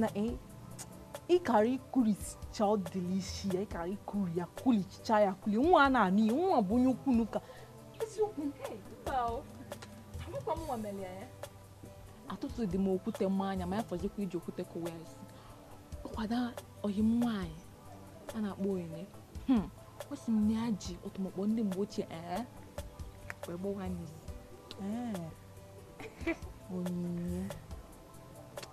mana eh? ịkara ikurichaa ọ dịlisi ya ịkara ikuri ya kulicha ya kuli nwa a na-anụ ihe nwa bụ onye ukwu n'ụka eziokwu eh? atụtụ dị m okwute mmanya anya ma ya fọzikwa iji okwute kụwa ya isi kwada oyim nwaanyị a na-akpọ onyinye hmm, o si m ya ji ọtụmọkpọ ndị mgbe ochie ee eh? wee gbawa n'iyi onyinye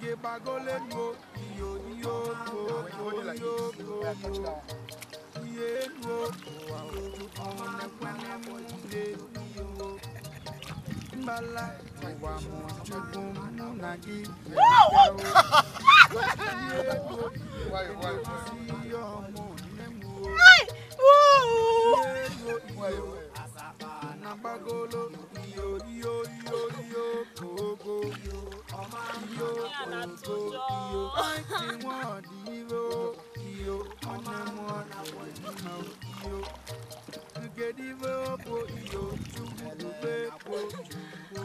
gege bagole nuo iyo iyo nuo iyo nuo iye nuo ọmọ ẹgbẹni mu le iyo mbala ìwà mu tukun mu na gi iye nuo ìwà ìwà sí ọmọ ẹmu o iye nuo ìwà anabagolo iyo iyo iyo iyo kogo iyo ọmọ iyo kogo iyo ti wọn dìbò iyo ọmọ wọn làwọn ìmọ̀ iyo ngedibo po iyo tugbe po tugbo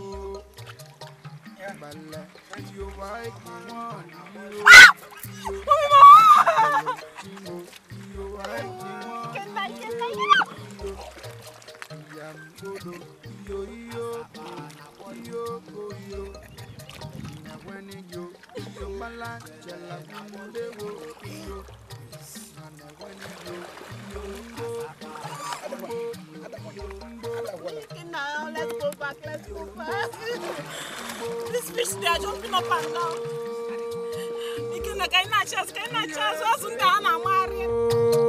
balẹ̀ iyo wa ti wọn dìbò iyo iyo wa ti. Nyamgodo, iyo iyo ko, iyo ko iyo. Nyamweni yo, iyo mala jala kunde wo iyo. Nyamweni yo, iyo mbo, mbo, mbo, mbo. Now let's go back, let's go back. This fish they are jumping up and down. Ikina kaina chance, kaina chance, wasunda ana mari.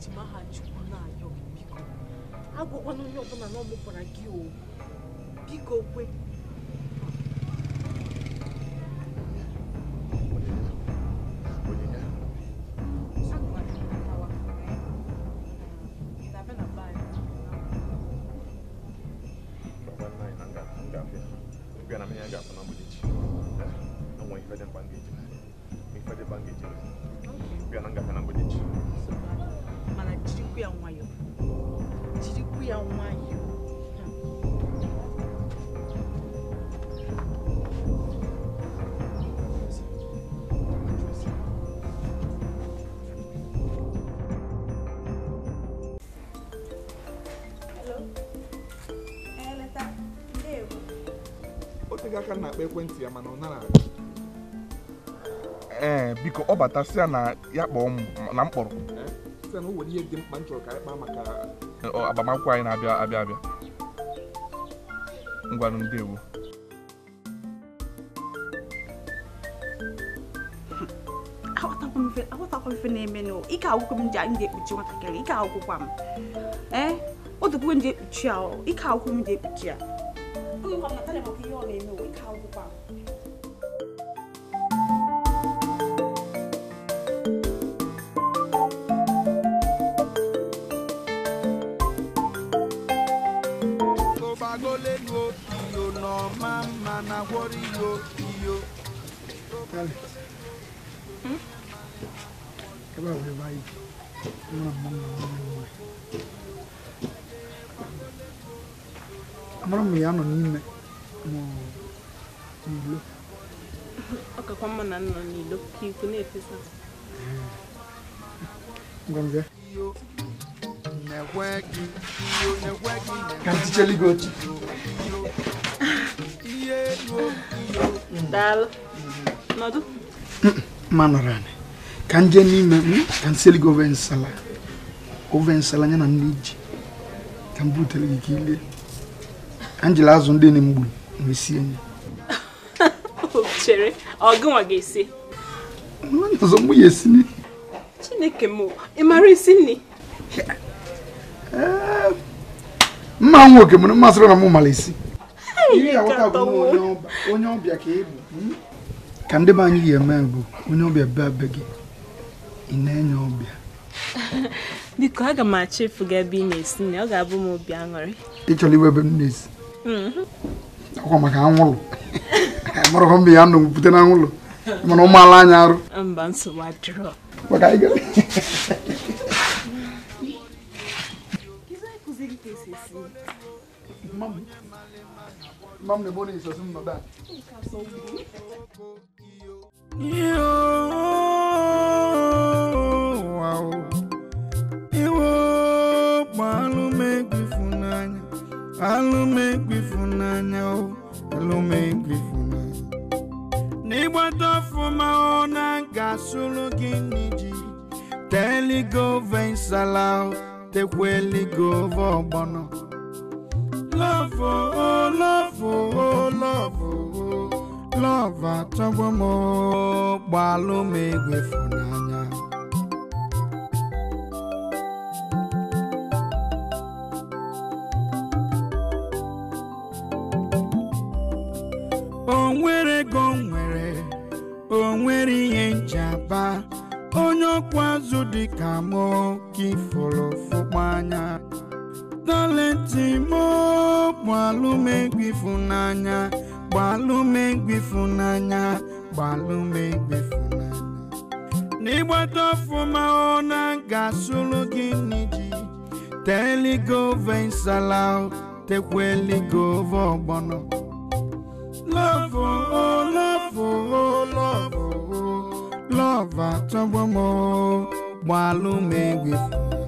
eji m aha chukwu na-ayọ biko agwakwana onye ọbụla na ọ mụpụra gị o biko kwe Okay. Biar nggak kena budic. Sebab jirikwu ya nwayọ jirikwu ya nwayọ e aka na-akpa ekwentị ya mana ọ nara ee biko ọ bata sị Eu é, na ya kpọọ m na m kpọrọ site na o nwere ihe dị mkpa m chọrọ ka anyị kpaa maka agbamakwụkwọ anyị na-abịa abịa abịa ngwanụ ndewo aghọtakwa ife na-eme n'ụwa ike agwụkwọ m ji ekpuchi nwatakịrị ike agwụkwọ m ee o dokwuo m ji ekpuchi ya ike agwụkwọ m ji ekpuchi ya ihe ọ na-eme ike agwụkwọ m kalẹ̀ ẹ bá wọlé báyìí ẹ máa mú mi wọn ní wọn. amúra mi yà nọ n'ime mọ n'ilo. ọkakwa mma na nnọ n'ilo ka ikwu na-efesa. ngọngọ. ka nticheli gị otu. manarani ka m jee n'ime ka m seli gị ove nsala ove nsala ya na nri ji ka m butere gị ka ile ka m azụ ndị na-egbu wee sie ya chere ọgụnwa ga-esi onye ọzọ mụ ya esi nri chineke m ị mara isi nri eh, mma nwoke mụrụ mmasịrị na mụ mara isi onye ọbịa ka ị bụ hmm? ka ndị be anyị yi eme bụ onye ọbịa bịa be gị ị na-enye ọbịa biko aga m achọ gị ebe ị na-esi nne ọ ga-abụ m obi aṅụrị ị chọrọ iwe ebe m na-esi ọkwa maka anwụlụ amụrụghị mba ya nọ pụte na anwụlụ mana ụmụala anya arụ mba nsogbu adịrọ Mam, mam ne iwekpa alụmegwu ifunanya alụmegwu ifunanya alụmegwu ifunanya n'ịgbata ọfụma ọ na ga-asụrụ gị n'iji teligova nsala oh, tekwa eligova ọgbọnọ oh, lọfụ o oh. lọfụ o lọfụ Lọva achọgo m gbalụ m n'anya o nwere ego nwere onwere ihe nchaba onye ọkwa azụ dị ka m ka ifuru fụkwa anya talenti m bụ ịfụnanya gbalụmegbe ịfụnanya gbalụmegbe ịfụnanya n'ịgbata ọfụma ọ na ga-asụrụ gị n'iji teligove nsala tekweligovo ọgbọnọ lọvụ o oh, lọvụ o oh, lọvụ o oh, lọvụ atọgbọmọ gbalụmegbe ịfụnanya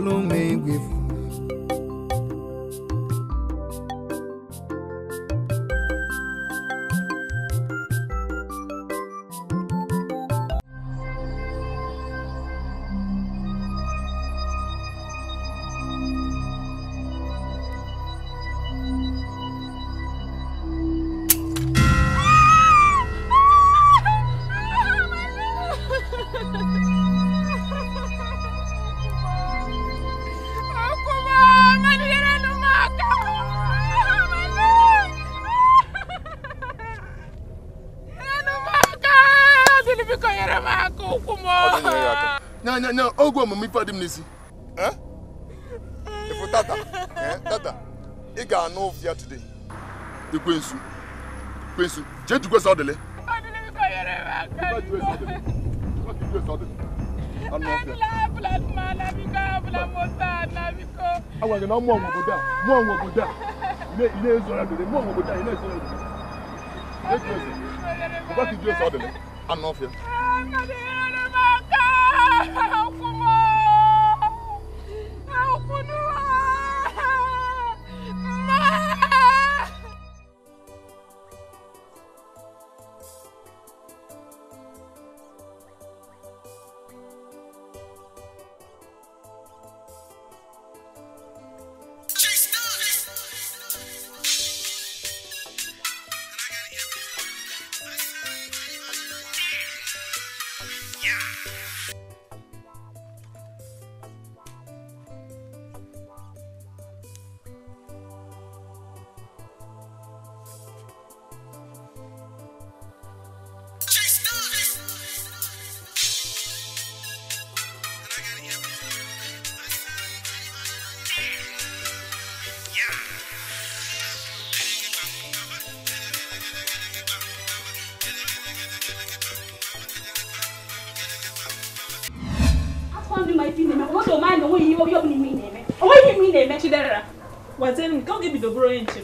me with egwu omume ife dị m n'isi ifu tata tata ị ga-anụ ụfụ ya today ekwensu ekwensu jee jukwe sọ dịle agwagị na mmụọ nwe a mmụọ nwe a na-ezora dịle mmụọ nwe obodo a ị na-ezora dịle ekwensu ọgbakị jukwe sọ anụ ọfịa gwazie m nke oge bidoburu onye nche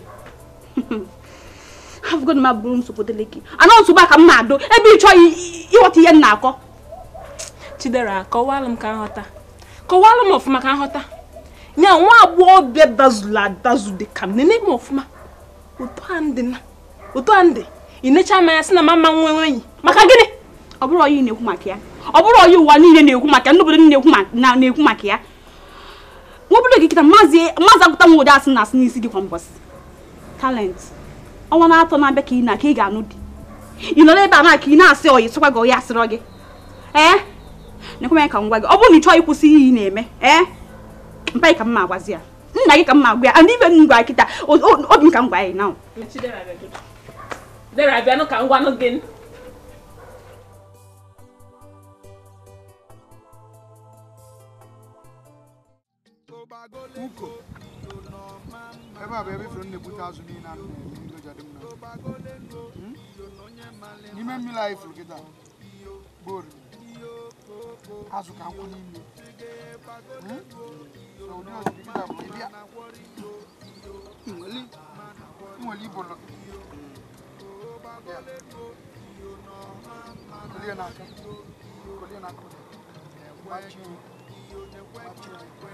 afụgo m abụrụ nsogbu gị anọ a ka m na-adụ ebe ị chọghị ihe na-akọ chidera m ka nghọta kọwalụ m ọfụma ka nghọta ya nwa agbọghọbịa dazụla adazụ dị ka m ọfụma uto ande ndị necha anya sị na mama maka gịnị ọ bụrụ onye na ọ ụwa na-ekwu ndị na-ekwu maka ya nkịta maazị agụta nwa ụdị asị na isi n'isi gị kwa talent ọnwa na-atọ na-abịa ka na ka ị ga-anụ di ị nọ n'ebe a na ị na-asị oyi sịkwa gị ọya asịrọ gị ee nekwe ya ka ngwa gị ọ bụrụ na ị chọọ ịkwụsị ihe na-eme ee mpa ka mma agwazi ya nna ka mma agwa uko ebe a bụ ebe ifuru na-ebute azụ niile a n'ime mmiri anyị furu kịta bụ oriri azụ ka nkwụ n'ime na ụdị oriri kịta bụ ịbịa nwere ibo lọ kolie na aka kolie na aka machi machi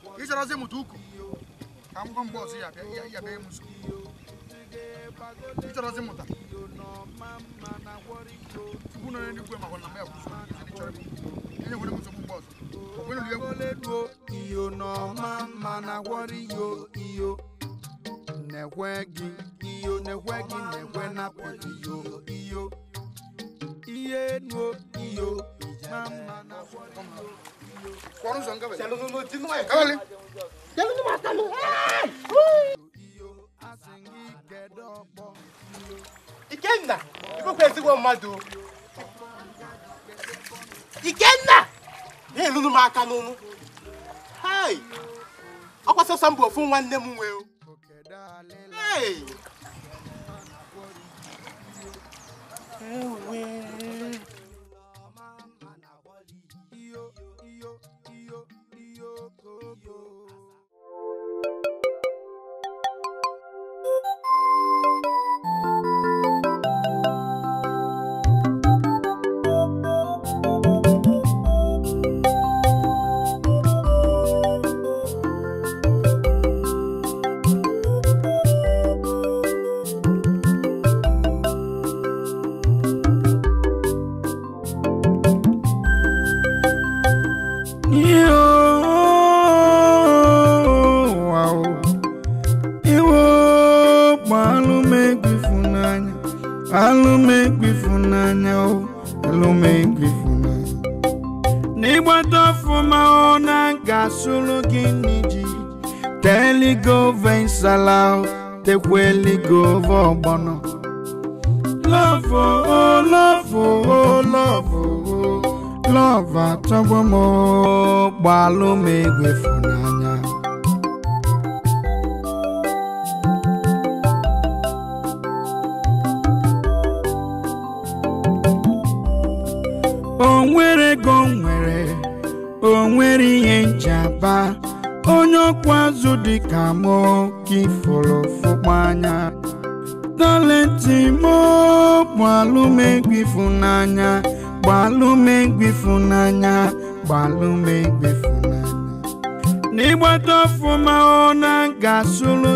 ka ị chọrọzi mụta ụkọ ka m gwa mgbe ọzọ ya bịa m nso ị chọrọzi mụta tupu nọ n'eluigwe ma gwara na m ya bụ nso ihe ị chọrọ enye nwere m nsogbu mgbe ọzọ onwenuliegwu iyo n'ọma mma na gwọrọ yo, iyo na-ekwe iyo na-ekwe gị na-ekwe iyo iyo iye nuo iyo mma mma na gwọrọ iyo Korun son kawale. Jalu no tin wa kawale. Jalu no mata no. Ikenna, ibu kwesi wo madu. Ikenna. Ne lulu ma aka n'unu. Hai. Ọkwa mbụ ofu nwanne m nwee Hey.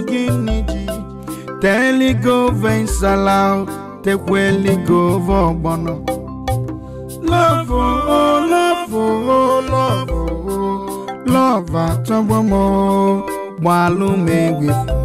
gịnị ji teligove nsala Love oh love oh love oh love gbalụ walume egwe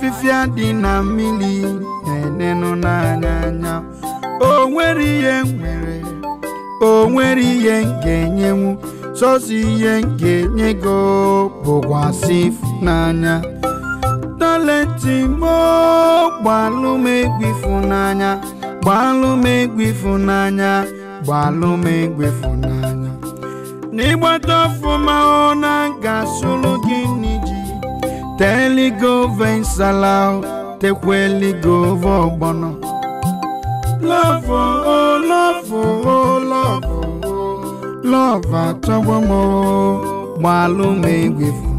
afịfịa dị na mmiri na-enenụ n'anya anya o nwere ihe nwere o nwere ihe ga-enyenwu sọsọ ihe ga-enye gị bụkwasị n'anya talenti m gbalụ m egwu ịfụnanya gbalụ m egwu ịfụnanya Salau, Tequeli Govo Bono. Love, oh, love, oh, love, oh, love, Atawamo, Malume with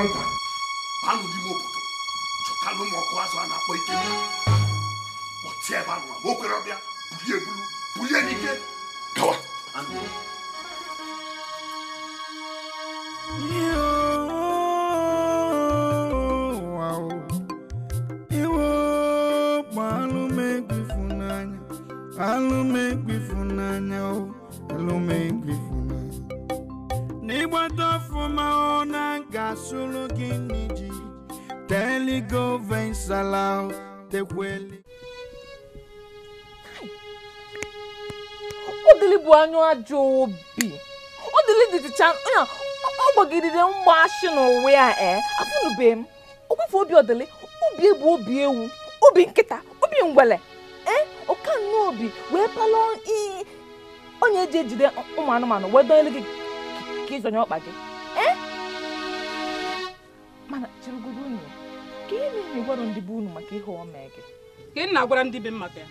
akwụkwọ nta banụ n'ime obodo chọtalụ ụmụ ọkụ azụ a na-akpọ ike kpọtie ebe anụ ma ọbịa bulie ebulu bulie n'ike gawa anụ a ọ gbagidere mgbashi n'ụwa ya ee eh, afụnube m ogbefe obi ọdịlị obi egbu obi ewu obi nkịta obi ngwele ee eh, ọka nnọọ obi wee palọ iyi onye eji ejide ụmụ anụmanụ wee dọnyere gị ka ịzọnye ọkpa gị ee eh. mana chịrịgodo unu ka ihe na ịgwara ndị be unu maka ihe omee gị ka ị na-agwara ndị be m maka ya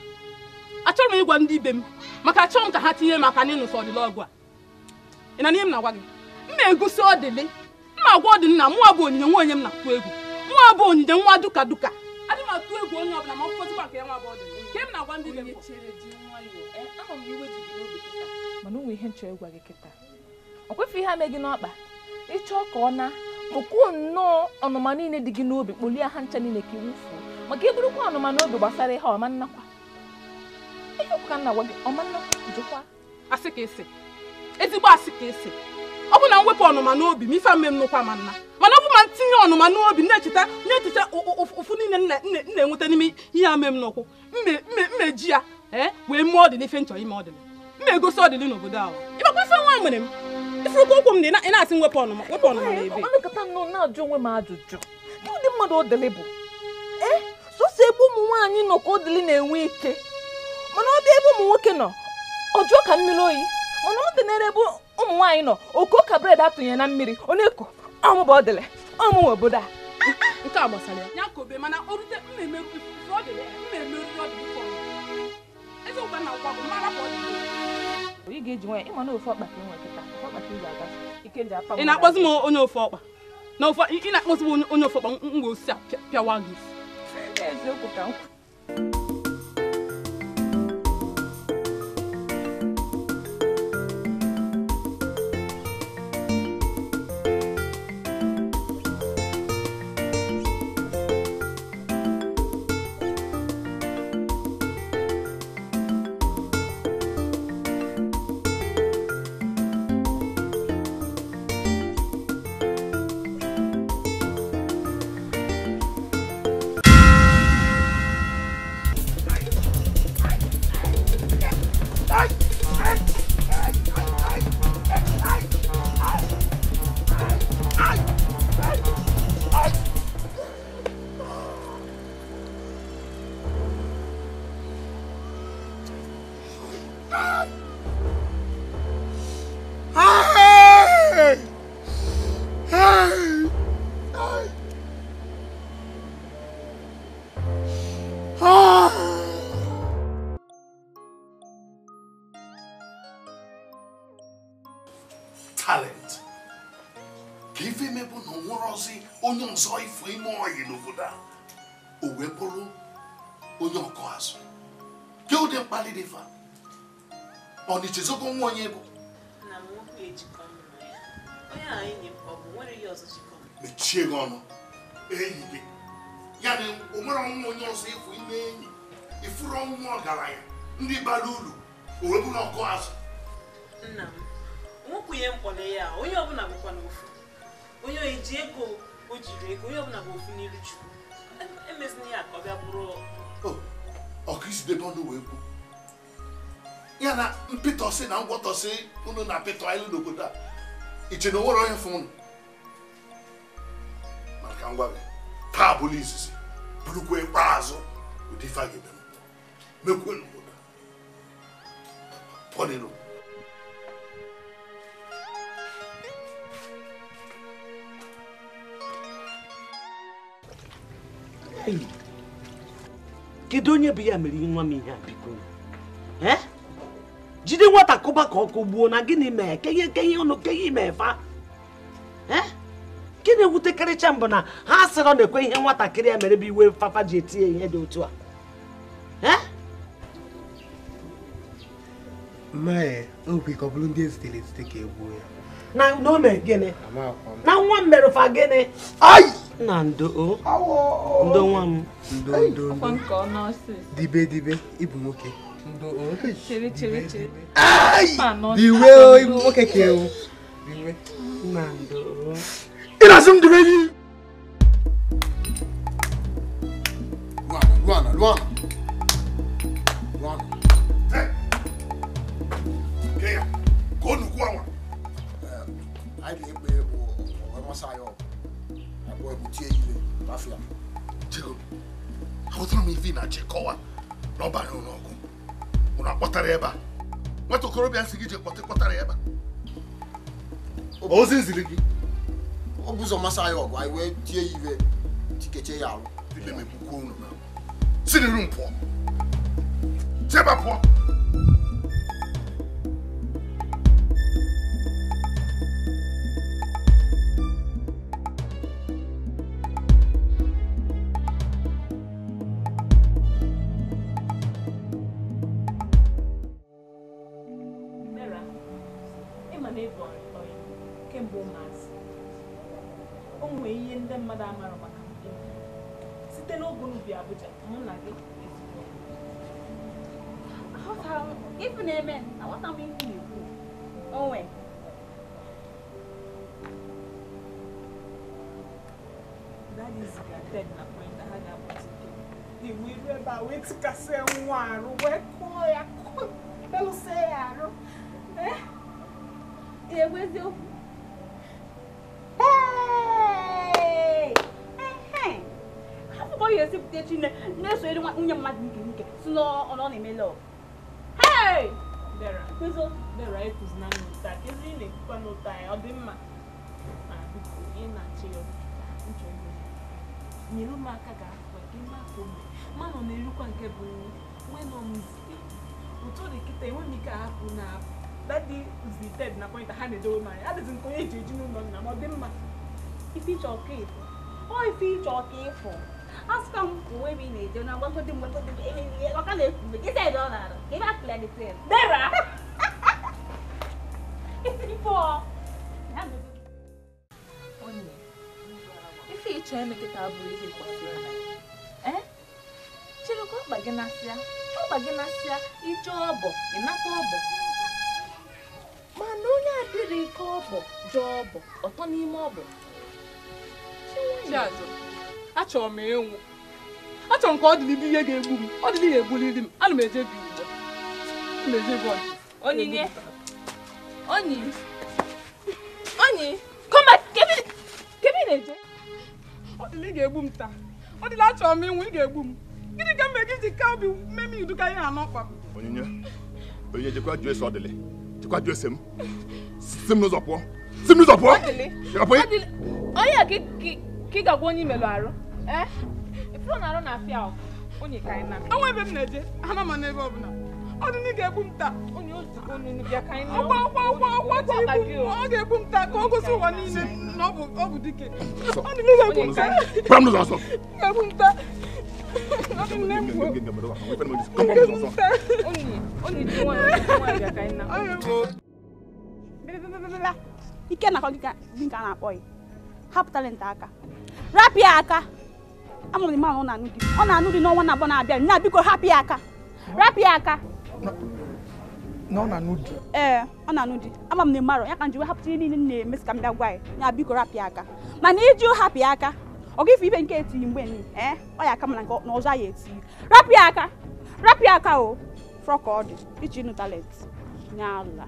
achọrọ m ịgwa ndị ibe m maka achọrọ m ka ha tinye maka n'ịnụsọ ọdịla ọgụ a ị na n'ihe m na-agwa gị na-egosi ọdịlị mma agwa ọdị na mụwa bụ onyinye nwa onye m na-atụ egwu mụwa bụ onyinye nwa duka duka adị m atụ egwu onye ọbụla ma ọ fọzikwa nke ya nwa bụ ọdịlị nke m na-agwa ndị be eh, mana ụmụ ihe nchọrọ ịgwa gị kịta ọ kwefe ihe ame n'ọkpa ịchọọ ka ọ na kpụkwuo nnọọ ọnụma niile dị gị n'obi kpolie ha ncha niile ka iwufuo maka ịbụrụkwa ọnụma n'obi gbasara ihe ọma nnakwa ihe ọkụka nna gwa gị ọma nnakwa jụkwa asị ka esi ezigbo asị ka esi ọ bụ na mwepụ ọnụma n'obi m ife mme m nụkwa ma nna mana ọ bụ ma ntinye ọnụma n'obi na-echeta na-echeta ụfụ niile m na-enweta n'ime ihe a mme m n'ụkwụ mmeji ya e, wee mee ọdịn ife nchọ ime ọdịna mma egosi ọdịn n'obodo ahụ ịbakwa ife nwa mere m ifurukwa ụkwụ m na ị na-asị mwepụ ọnụma wepụ ọnụma na ebe na-ajụ onwe m ajụjụ ndị mmadụ ọdịlị bụ e, sọsọ ebe ụmụ nwaanyị nọ ka ọdịlị na-enwe ike mana ọ dị ebe ụmụ nwoke nọ ọ jụọ ka mmiri oyi mana ọ dị n'ere ebe ụmụ nwaanyị nọ oko ka bred atụnye na mmiri onye ko ọmụba bụ ọmụwa obodo a nke a gbasara ya ya mana o rute mmemme ị ga-eji nwaanyị ịma na ofe ọkpa ka nwere kịta ọkpa ka ị ga-aga ike nji akpa ị na-akpọzi m onye ofe ọkpa na ofe ị na-akpọzi m onye ofe ọkpa m ga-osi a pịawa gị eziokwu ka m ego dị mkpali dị fa ọ na-echezogo nwa onye bụ mechie gị ọnụ enyi gị ya na o nwere ọnwụ onye ọzọ ịfụ ime enyi ịfụrụ ọnwụ ọgaranya ndị bara uru o wee bụrụ ọkụ azụ nna m nwokwunye mkpọrọ ya onye ọbụla bụkwa n'ofu onye eji ego o jiri ego onye ọbụla bụ ofu n'iru chukwu emezina e ya ka ọ bịa bụrụ ọkristo ebe ọnụ wee kwu ya na mpịtọsị na ngwọtọsị unu na apịtọ anyị n'obodo a iche na onwere onye fụ unu maka ngwa gị taa bụrụ izizi bụrụkwa ikpeazụ ụdị ife a ga n'obodo pụọ Hey. kedu onye bụ ya mere nwa m ihe a biko jide nwata kụba ka ọkụ gbuo na gịnị mee kenye kenye ọnụ kenye ime fa na-ewutekarịcha mbụ na ha sịrị ọ na-ekwe ihe nwatakịrị ya mere bụ iwe fafa ji eti ya ihe dị otu a na nwa m merụfa na ndo ndo nwa m ndo ndo ndo dibe dibe ịbụ nwoke ịbụ nwoke ka ewu ndo m dibe gị Luana, àlàáfíà. jẹ́rọ àwọn táwọn ivi na jẹ́kọ́wà n'ọba anyị ụlọ ọgụ ụlọ akpọtara ebe a nwata okorobịa nsị gị ji kpọta kpọtara ebe a ozi nziri gị ọ bụ ụzọ mmasị anyị ọgụ anyị wee tie ya iwe tikeche ya alụ ibe megbukwa unu si n'iru m pụọ chebe pụọ na n'ụta kezi ị na-ekwukwa n'ụta ya ọ dị mma na biko ị na-achị ya nyere m aka ga afọ gị mapụ mgbe mmanụ na-erukwa nke bụ nri ụtọ dị kịta enwe ike ahapụ na dadi na ha na-edowe m anya adịzi nke onye eji eji n'ụlọ nna ma ọ dị mma ife ịchọ ọka ịfụ ọ ife ịchọ ọka ịfụ m onwe m na-eje na ọka na mgbe ọ ka pụọ ife ịchọ eme bụrụ ihe chịrị ka na asịa ọ ọgba na asịa ije ọbọ ịnata ọbọ mana onye adịrị ike ọbọ jụọ ọbọ ọtọ n'ime ọbọ achọrọ m ịnwụ achọrọ m ka ọ ihe ga-egbu m ọ ya ana m enyi come back kebe na-eje eh? ọ dịla ị ga-egbu m taa ọ dịla achọrọ m ịnwụ ị ga-egbu m gịnị ka mgbe gị ji ka obi mme m iduka ihe anọ kpam onyinye onyinye jekwa jụọ ese ọ dịlị jekwa jụọ ese m si m n'ụzọ pụọ si m n'ụzọ pụọ onye a ka ị ga-agwa onye imelụ arụ ee eh? ifuru na arụ na afịa onye ka anyị na enwe ebe m na-eje ama m n'ebe ọbụla ọdụnụ ga-egbu m taa ọ taa ọ ọ taa na a na-akpọ ya aka rapụ ya ọ na-anụ ọ na aka na ọ na-anụ di ee eh, ọ na-anụ di ama m na ịmarọ ya ka njiwe hapụta ihe niile na-eme si ka m bịa gwa ya ya biko rapịa aka mana iji hapụ aka ọ gị ife ibe nke etinye mgbe ni ee eh? ọ ya aka mana na ọzọ ya etinye rapịa aka rapịa aka o frọk ọ dị iji nụ talent nye ala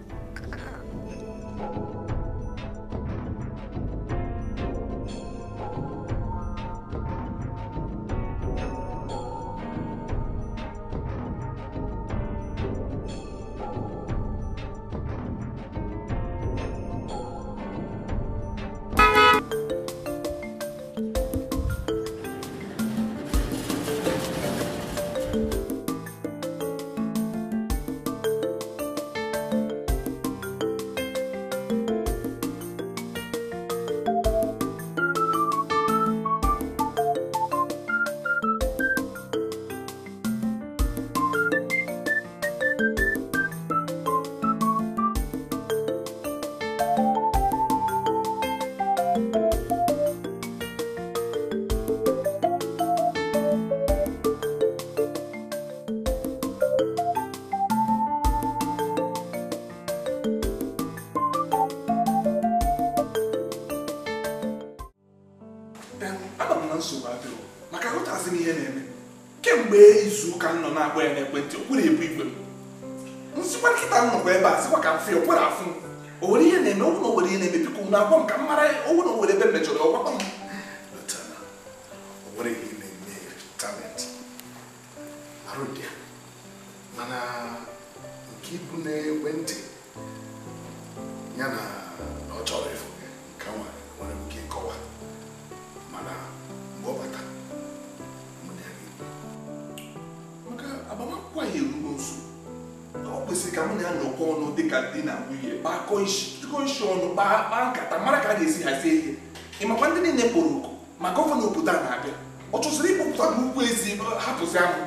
de ka di na wu ye ba kɔnsɔn ba ba kata mara ka de si ase ye imakwa e ndị niile kpọrọ oku maka ọfọ na obodo a na-abịa ọ chụsịrị ịkpọpụta bụ ugwu ezi hapụzi ahụ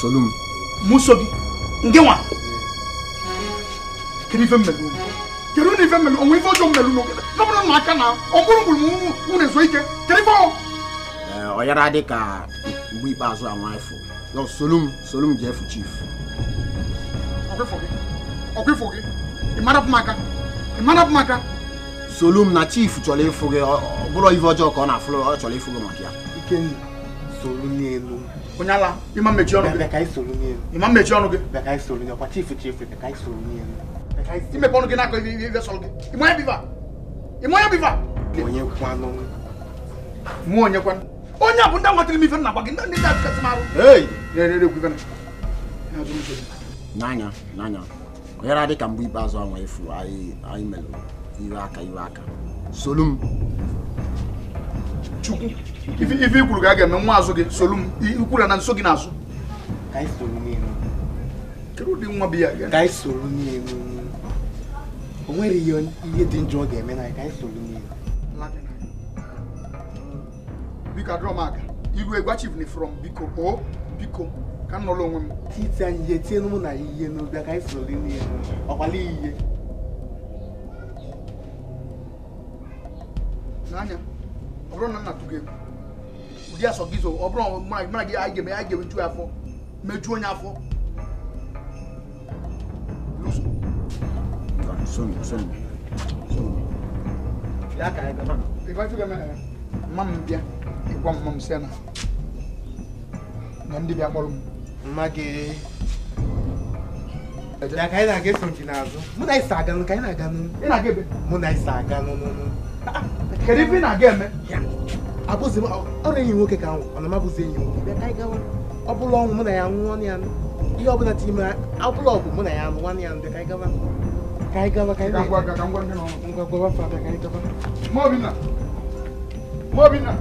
solum musogi ngewa kini fɛn mɛlu kiri ni fɛn mɛlu ɔmu ifɔ jɔ mɛlu no lɔbɔdɔ na kana ɔbɔlɔbɔlɔ mu mu ne so ike kiri fɔ. ɛɛ ɔyɛra de ka bui ba zɔ àwọn ɛfɔ yɔ solum solum jɛ fu chief. ɔkè fɔkè ɔkè fɔkè ìmara kuma kan ìmara kuma kan. solum na chief tsɔlé fɔkè ɔbɔlɔ ifɔ jɔ kɔ na fɔlɔ ɔtsɔlé fɔkè mɔkia. ike solum ni elu. onye ala ịma mmechi ọnụ gị ịma mmechi ọnụ gị imepe ọnụ gị n'aka ibe sọrọ gị ịmụ ya biva ịmụ ya biva mụ onye kwanụ onye a bụ ndị nwatara m ife na gị ndị ndị m arụ n'anya n'anya dị ka mgbe ikpeazụ anwa efu anyị melụ aka iwe aka chukwu ife ikwuru ga ga-eme nwa azụ gị solu m ikwuru na nso gị n'azụ kedu ụdị nwa bi ya ga o nwere ihe dị njọ ọ ga-eme na ka anyị biko adọrọ aka iru egwa ni from biko o oh, biko ka m nọrọ onwe m titi ihe tie mụ na ihe n'obi ka anyị soro ihe n'anya bụrụ na nna tụgo egwu ụdị asọ gị zo ọ bụrụ mara gị anyị ga-eme anyị ga-emeju afọ mejuo onye afọ mma m bịa ịgwa mma m si na ndị bịa kpọrọ m mma gị ka anyị na-aga eso n'azụ mụ na ịsa aga nụ ka anyị na-aga nụ mụ na ịsa aga nụ n'ụnụ kedu ife ị na-aga eme abụzi ọrụ enyi nwoke ka nwụ ọ na mabụzi enyi nwoke bịa ka anyị gawa ọ bụla ọnwụ mụ na ya nwụọ ya ihe ọbụla ti ime ọbụla ọgụ mụ na ya nụ nwanne ya ndị ka anyị gawa ka anyị gawa ka anyị gawa ka ngwa gwawa fa abịa ka anyị gawa Mobina Mobina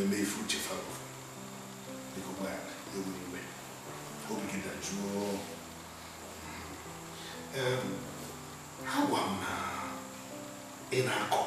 mmeifu chefago niko mwana ewuriwe obigenda juo um, agwa m ị na-akọ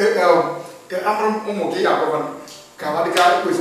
Abraham, Omo, maar Kavan, Kavadika, who is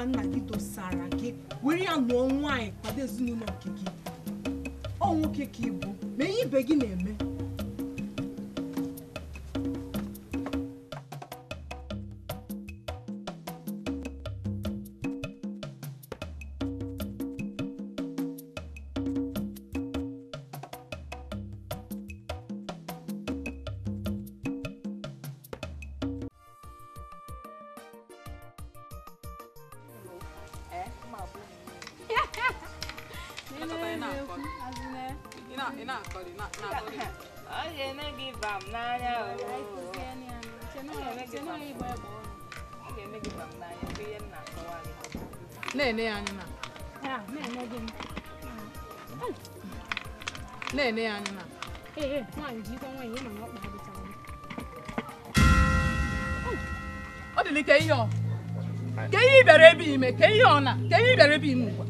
wana naki tosala ọ ga-eme gị na-ene anya na-ene ya anya na ọ ka ọ ka ihe ọ na ka ihe ebe ime ugbu a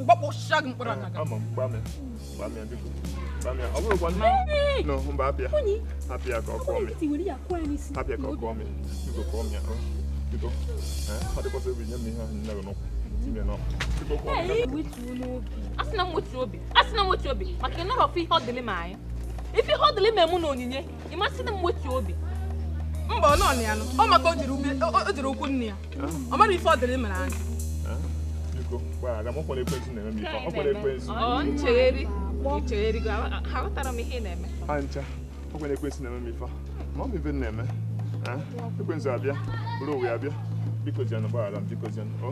mgbakpọ shag mkpọrọ na ama mgbame mgbame biko mgbame ọ bụrụ gwanna no mba abịa abịa ka ọ kụọ mi abịa ka ọ kụọ mi biko kụọ mi ahụ biko ọ dịkwa ebe nye m ihe ahụ nne gị n'ụkwụ tinye n'ọkụ biko kụọ mi asị na mwetu obi asị na mwetu obi maka ịnọrọ ọfụ ihe ọ dịlị ma anyị ife ihe ọ dịlị ma emu na onyinye ịmasị na mwetu obi mba ọ nọ na ya nọ ọ maka o jiri ụkwụ nne ya ọ mara ife ọ dịrị mere anyị biko mgbaghara m ọkwere ekwentị na-eme a ekwentị nchegheri nchegheri aghọtara m ihe na-eme ha ncha ekwentị na-eme ma ọ bụ na-eme ekwentị abịa bụrụ owe abịa biko jianụ gbaghara m biko jianụ o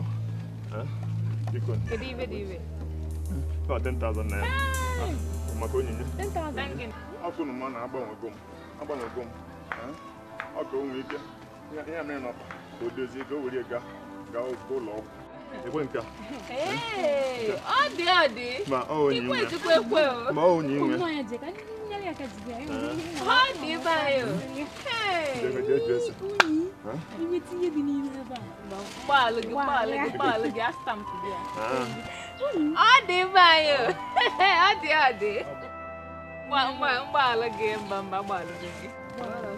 ụlọ ọgwụ ekwenka odi odi ikwezi kwekwewo ma onyimwe odi oh. eh. bayo gbalụ gị gbalụ gị de gị astampụ gị odi bayo odi odi mgbalụ gị mba mba gbalụ gị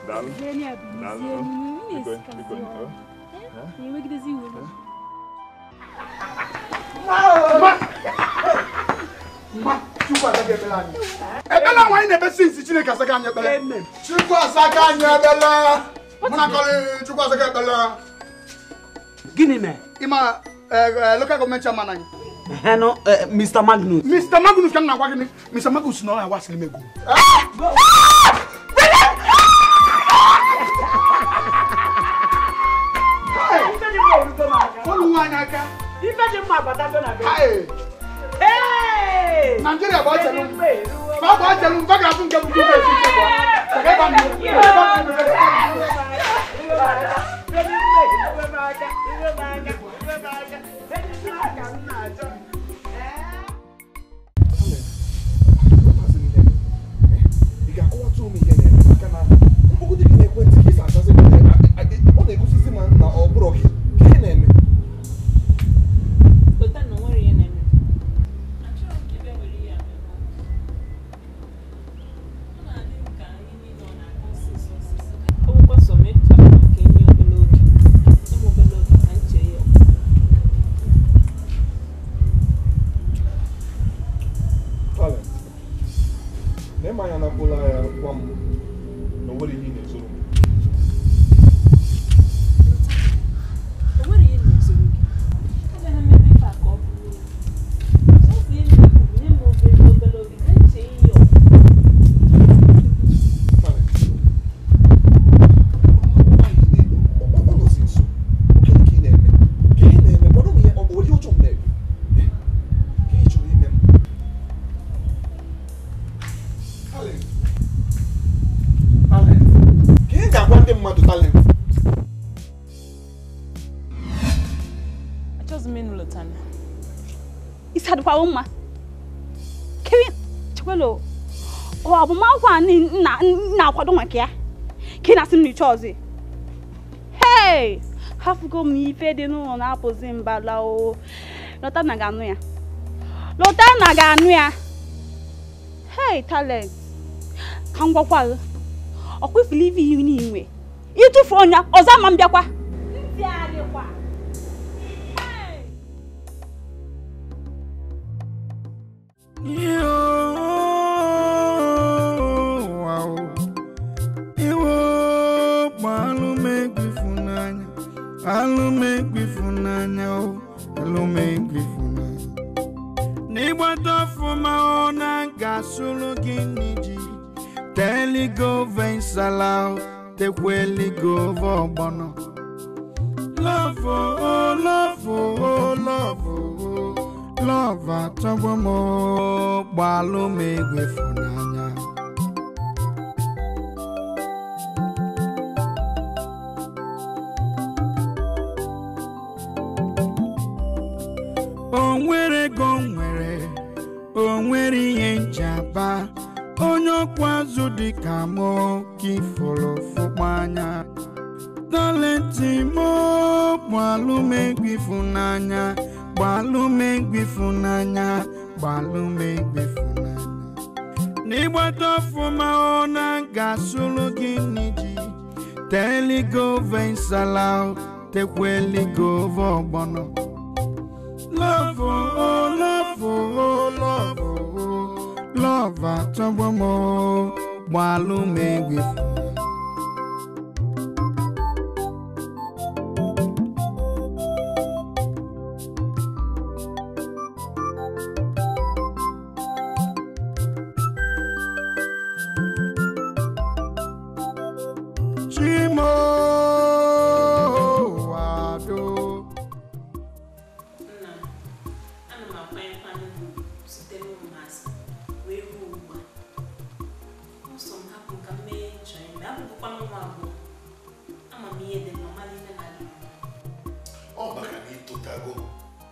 daalụ daalụ biko biko enwegidozi iwe eh? ebela wanyị na-ebesi nsi chineke asaga anya ekpere chukwu asaga anya ebela mụnakọrị chukwu asaga ekpere gịnị mee ịma local gọọmenti chairman anyị Heno, uh, Mr. Magnus. Mr. Magnus kan na gwa gini. Mr. Magnus no na wa sile mego. Follow one aka ife dị mma agbata na be Nigeria bụ ọchelu ma ọ bụ ọchelu mfe ga-abụ nke bụ gọọmenti ọchịchị ọzi hei hafụgo m ife dị n'ụlọ na-apụzi mba o lọta na ga-anụ ya lọta na ga-anụ ya hei talent ka m gwakwarụ ọkwụfụlụ ife ihu n'inwe ịtụfu ọnya ọzọ ma m bịakwa Yeah.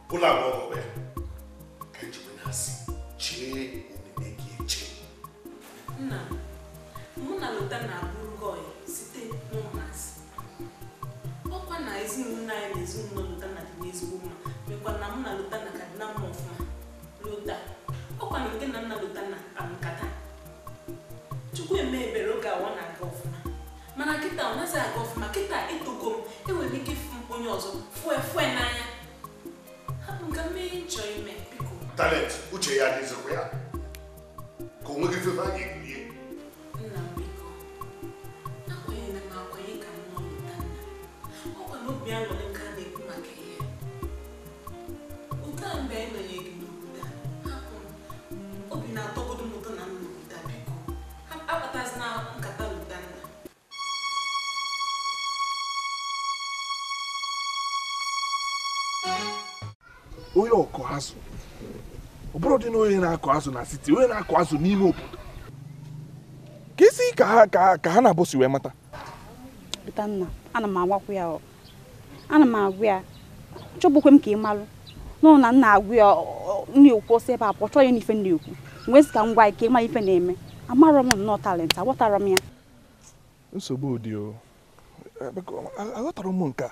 kula ngoku azụ ọbụrụ dị na onye na-akụ azụ na siti onye na-akụ azụ n'ime obodo ka isi ka ha ka ha na-abụsi wee mata Bitanna ana m agwakwa ya ana m agwa ya chọbụkwe m ka ị malụ nọ na nna agwa ya na-ekwu ọsọ ebe a pụ chọọ ya n'ife na-ekwu mgbe esi ka ngwa ike ịma ife na-eme amarọ m nnọọ talent aghọtara m ya nsogbu ụdị o aghọtara m nke a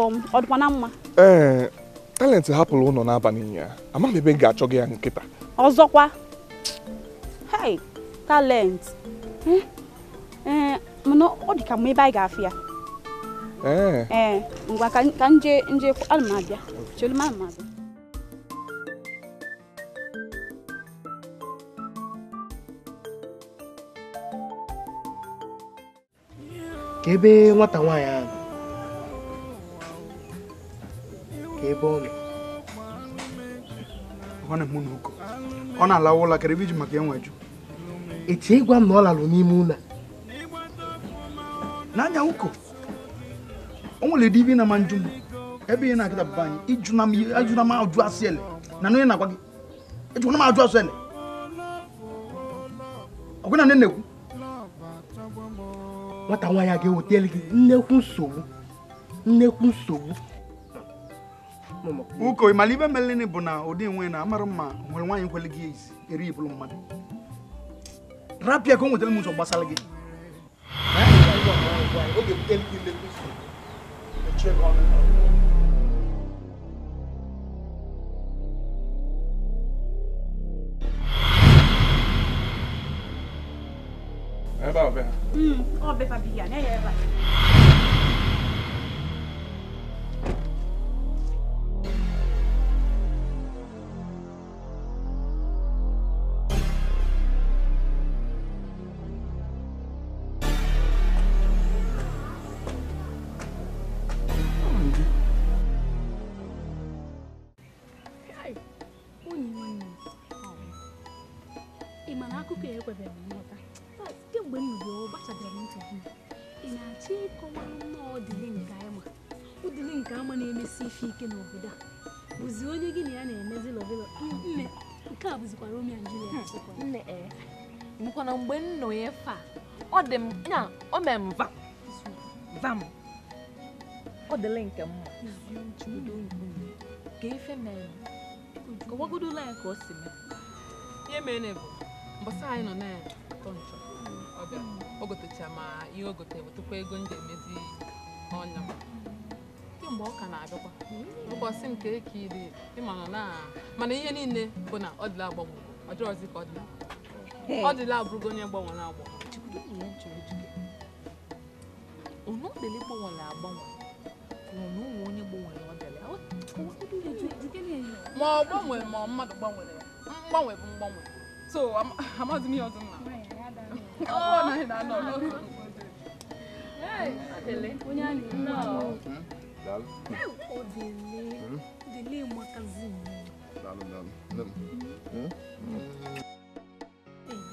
kpọọ m na mma ee talent hapụrụ ụlọ n'abalị ya amaghị ebe m ga-achọ gị ya nkịta ọzọkwa hei talent hm? ee mana ọ dị ka mma ebe anyị ga-afụ ya ee ngwa ka nje nje ana m abịa chelu m abịa ka ebe nwata nwaanyị ahụ n'ebe ọ nọ ọ na-eme ọ na-alawa ụlọ karịa iji maka enweju etu ịgwa m na ọ lalụ n'ime ụlọ n'anya ụkọ o nwere divi na ma njụ m ebe ihe na-akịta bụba anyị ijụna m ajụ asị ele na onye na-agwa gị ejụna m ajụ asị ele ọgwụ na nne na nwata nwa ya ga-ewetele gị nnekwu nsogbu nnekwu nsogbu uko ịmala ibe melini bụ na ụdị nwe na amara mma nwere nwaanyị nkwele gị ezi eri ibulu mmadụ rapịa ka o nwetara m ụzọ gbasara gị ebe ọbịa ọbịa ya na-enye ebe a mana mgbe m nọ ya ọ dị m nya o mere m vam vam ọ dịla nke mma ka ife mere ka ọgwagodola ya ka o si mee ihe mee na bụ mbọsa anyị nọ na atọ kọntrọ ọbịa bịara o gotecha ma ihe o gote wetakwa ego m ga-emezi ọnya kemgbe ọ ka na-abịakwa ụbọchị nke ka ịdị ịma nọ na mana ihe niile bụ na ọ dịla agbanwe ọ dịrọzi ka ọ dịla ọ dịla abụrụgo onye gbanwere agbanwe ọnụ ọdịla gbanwere agbanwe ụmụ onye gbanwere ọdịla ma ọ gbanwere ma mmadụ gbanwere mgbanwe bụ mgbanwe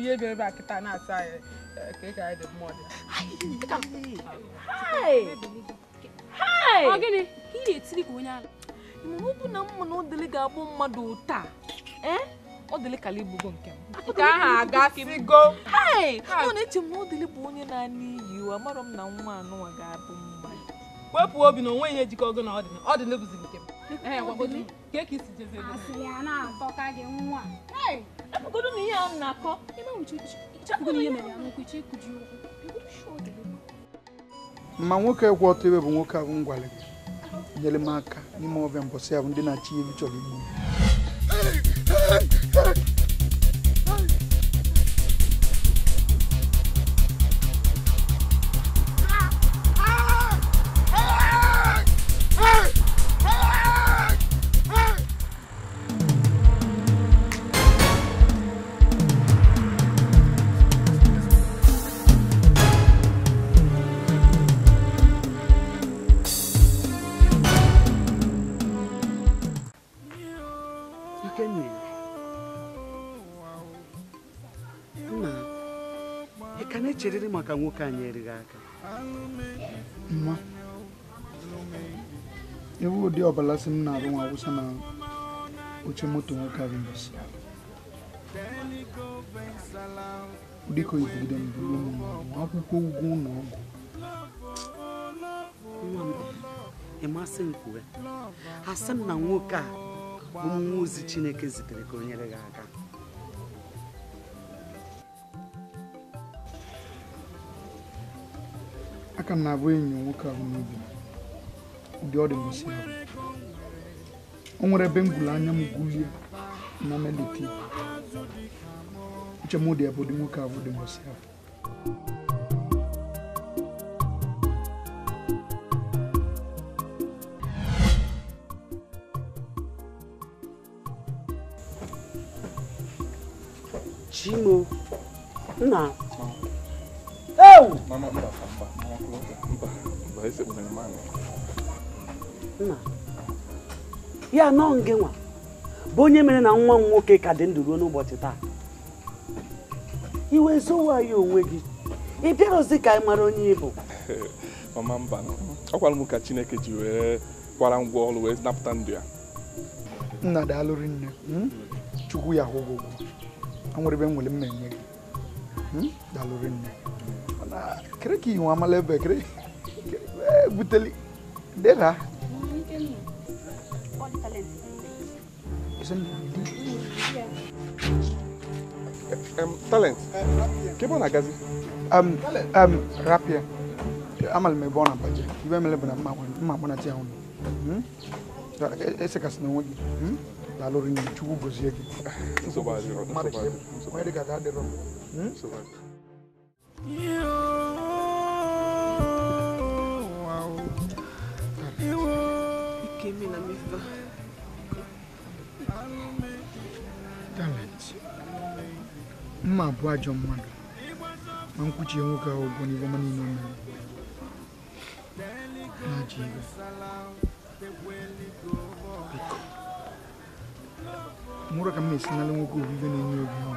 ihe bịara ebe a kịta na-asa anyị ka ị gara dị mmụọ dị na ka onye ọ bụ na mma na odili ga-abụ mmadụ taa eh? odili kala igbugo nke m na-eche m na odili bụ onye na-ana iyi amarọ m na nwa anụwa ga-abụ wepụ obi na onwe ihe nke m eh, ka esi a na ma nwoke e kwụ ọtọ ebe bụ nwoke ahụ ngwale nyere m aka n'ime ọbịa mbọsị ahụ ndị na-achị ihu chọrọ igbu nwoke anyị erighị aka nwa ewu ụdị ọbala si m na-arụ nwa awụsa na oche moto nwoke arinos dịka ibugide mbụ akwụkwọ ụgwọ e ụlọ ọgwụ ịmasị nkwuwe asị m na nwoke a bụ mmụọ ozi Chineke zitere ka o nyere gị aka aka m na-abụ enyi nwoke ahụ n'obi ụdị ọ dị ahụ o nwere ebe m gwuru anya m gwulie na melite uche m dị ebe ụdị nwoke ahụ dị ngosi ahụ nna ya nọ nge nwa bụ onye mere na nwa m nwoke ka dị ndụ ruo n'ụbọchị taa iwe zowa ya onwe gị ị bịaghịzi ka ị mara onye ịbụ mama mba ọ gwara m ka chineke ji wee kwara ngwa ọrụ wee napụta ndụ ya nna dị alụrụ nne hmm? chukwu ya hụ ụgwọ nwere ebe nwere mmemme gị hmm? dalụrụ nne mana kere ka iwe amala ebe kere e, buteli dera isn't Um, talent. Kébọ̀ na gazi. Um, um, rapier. Amal me bona baje. Ibe mele bona ma won, ma bona ti awon. Hmm? Da e, ese kas na woni. Hmm? La lori ni chugu gozi yake. So ba So Ma de. Ma de ka da de ro. Hmm? So ba. Wow. Iwo. Ikemi na mi fa. talent mma abụ ajọ mmadụ ma nkwuchie nwoke ahụ ụgwọ n'ihe ọma niile mere na-aja iwe biko mụrụ ka m na-esinala nwoke obibi na-enye obi ọnụ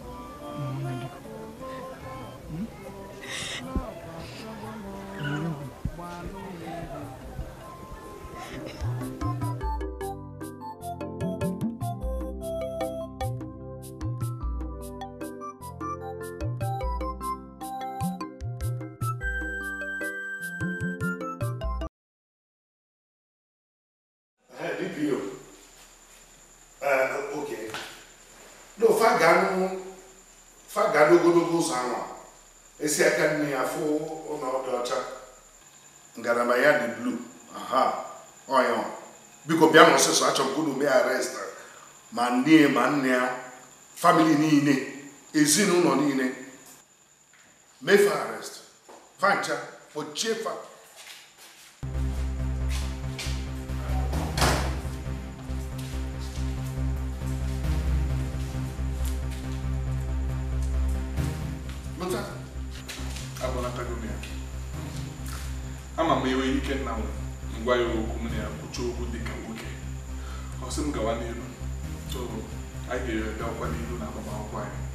Mm-hmm. bịa na ọsịsọ achọrọ m ka unu ma nne ma nne ya famili niile ezinụlọ niile mefe arrest fancha ochefa fa ama m iwe ikenna m ngwa ya okwu m na ya kwucha okwu dịka kwụsị m gawa n'ihu anyị ga-ere ọkwa n'ihu na agbamakwụkwọ anyị